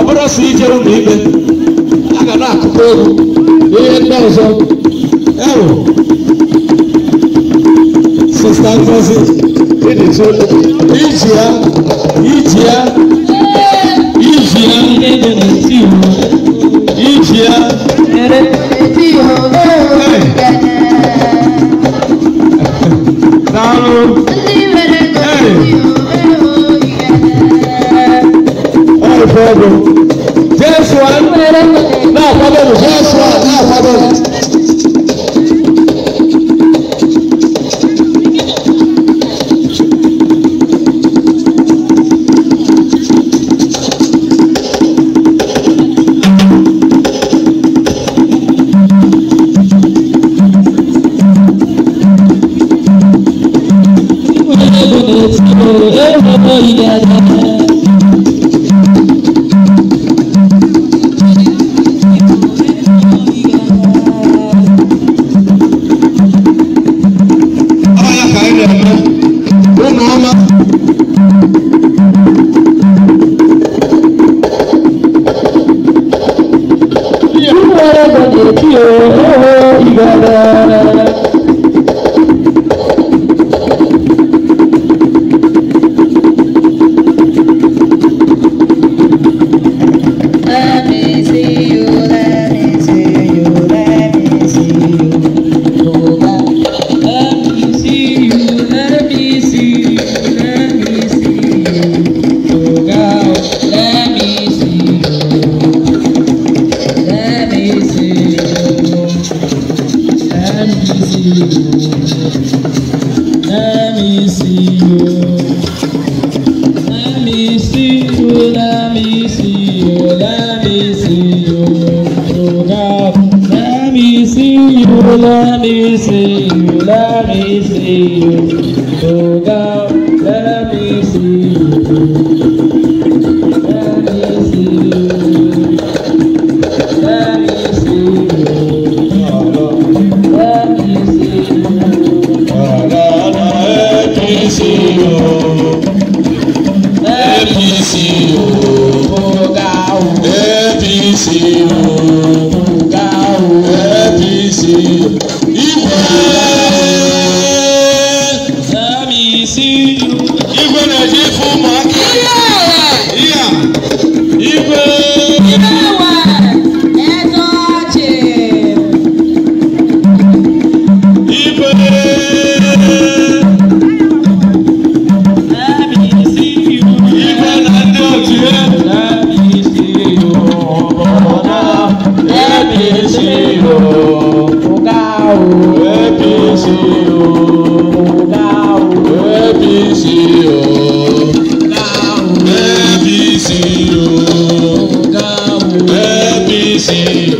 ọbụrụ sị ije ụlọ ikpe a ga na-akụkọ egwu ihe ndị ọzọ ewu sista ngozi iji ya iji ya iji ya ndị dị No problem. Yes, right. No problem. You ye gada let me see you, let me see you. Oh God, let me see you. Let me see you. Let me see you. Oh God, let me see you. Let me see you. Oh God, let me see you. Gaúcho é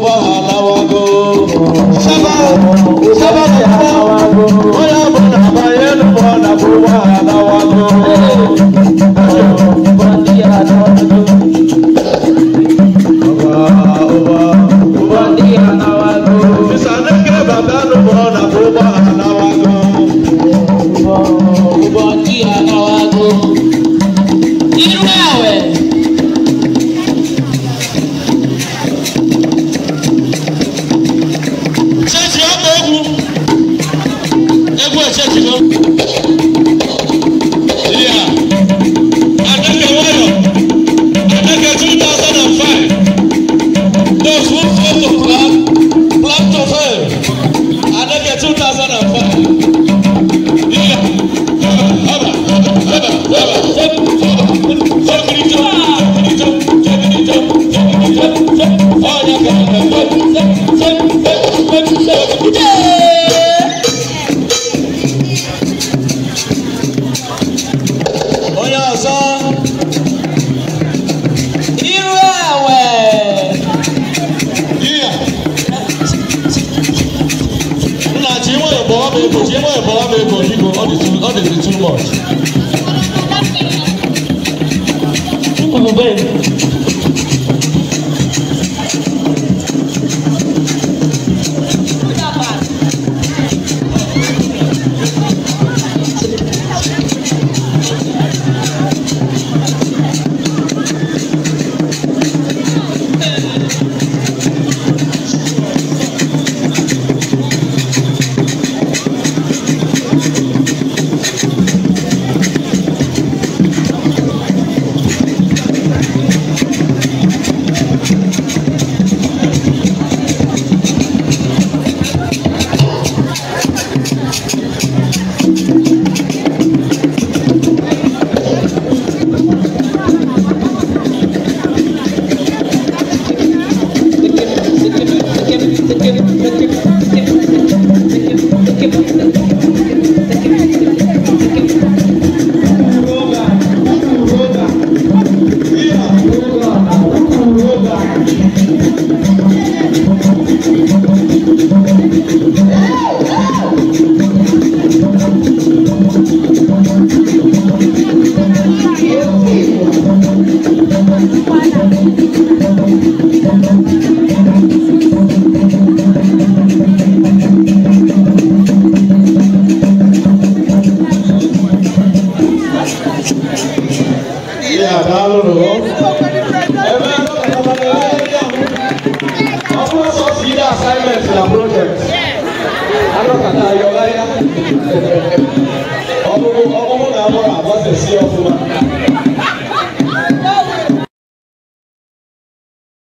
bá wà láwago. sábà Jesus' blood, Igbo, Igbo, all this is too much. Yeah,